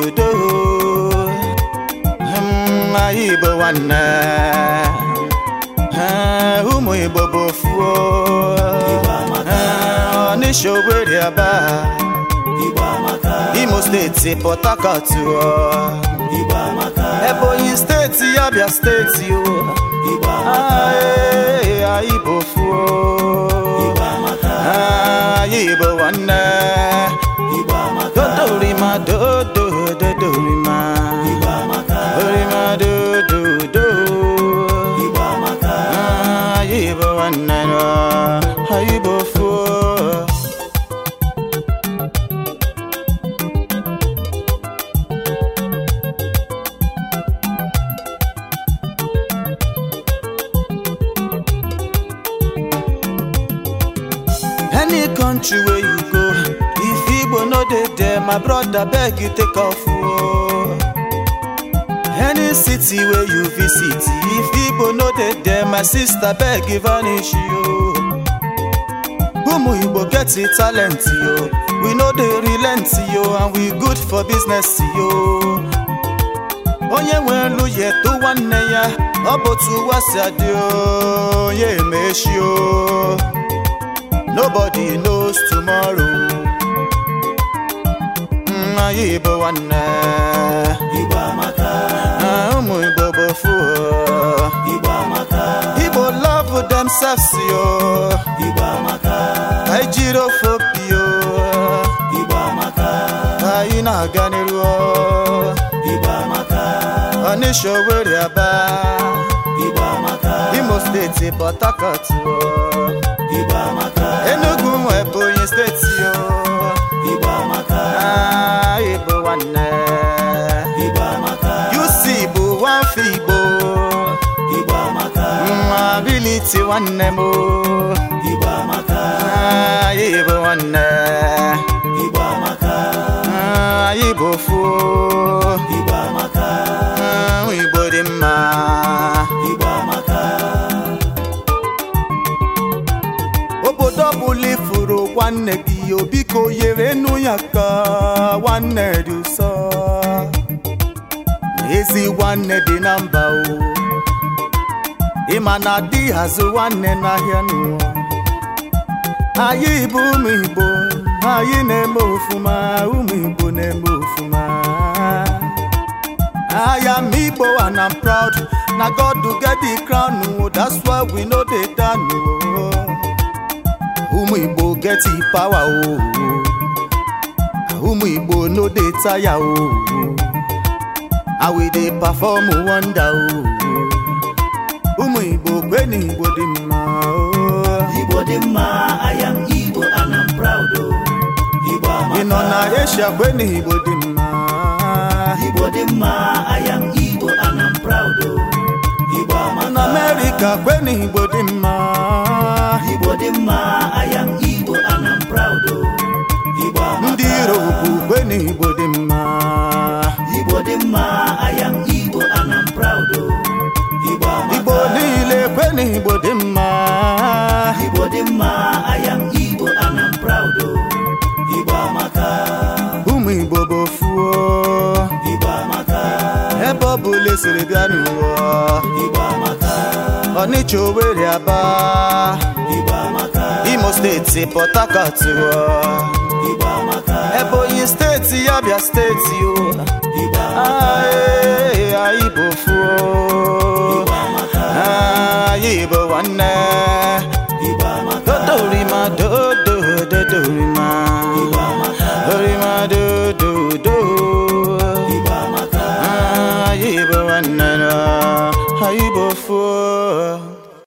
udo anyị Igbo nwanne ụmụ Igbo bụ Fuo, Ọnịsha Owerri Aba Imo steeti Port Harcourt Ebonyi steeti Abia steeti o any country wey you go if igbo no dey there my brother beg you take off o oh. any city wey you visit if igbo no dey there my sister beg you vanish o oh. ụmụ igbo get talent yo we no dey relent yo and we good for business yo onye nwere elu ya eto nwanne ya ọ bụ otu ụwa adị onye oh, emechi o nobody knows tomorrow anyị bụ nwanne Igbo amaka na ah, ụmụ Igbo bụ fuo oh. Igbo amaka Igbo love themselves yo Igbo amaka anyị jiri ofe opi yo Igbo amaka anyị na-aga n'iru oh. Igbo amaka Ọnịsha Owerri Aba Igbo amaka Imo steeti Port Harcourt oh. n'afọ Igbo mabiliti nwanne m anyị bụ nwanne anyị bụ ofu Igbo dị mma obodo ọbụla ifuru nwanne gị ya obiko nyere nụ ya ka nwanne dị ụsọ ezi nwanne dị na mba o ịma na di hazụ nwanne n'ahịa nụ anyị bụ ụmụ Igbo anyị na-eme ofuma ụmụ Igbo na-eme ofuma I am Igbo and I'm proud na God get the crown o that's why we no dey down o ụmụ Igbo get the power o ụmụ Igbo no dey tire o I will dey perform wonder who, oh. Ụmụ Igbo kweni Igbo dị mma oh. Igbo dị mma, I am Igbo and I'm proud o. Oh. Igbo amaka. Ị nọ na Asia kweni Igbo dị mma. Igbo dị mma, I am Igbo and I'm proud o. Oh. Igbo amaka. Ị nọ America kweni Igbo dị mma. Igbo dị mma. na Igbo dị mma Igbo dị mma Igbo oh. ụmụ Igbo bụ ofuo Igbo ebe ọ bụla esiri bịa n'ụwa Ọnịcha Owerri Aba Imo steeti Port Harcourt Igbo amaka Ebonyi steeti yabia steeti o nwanne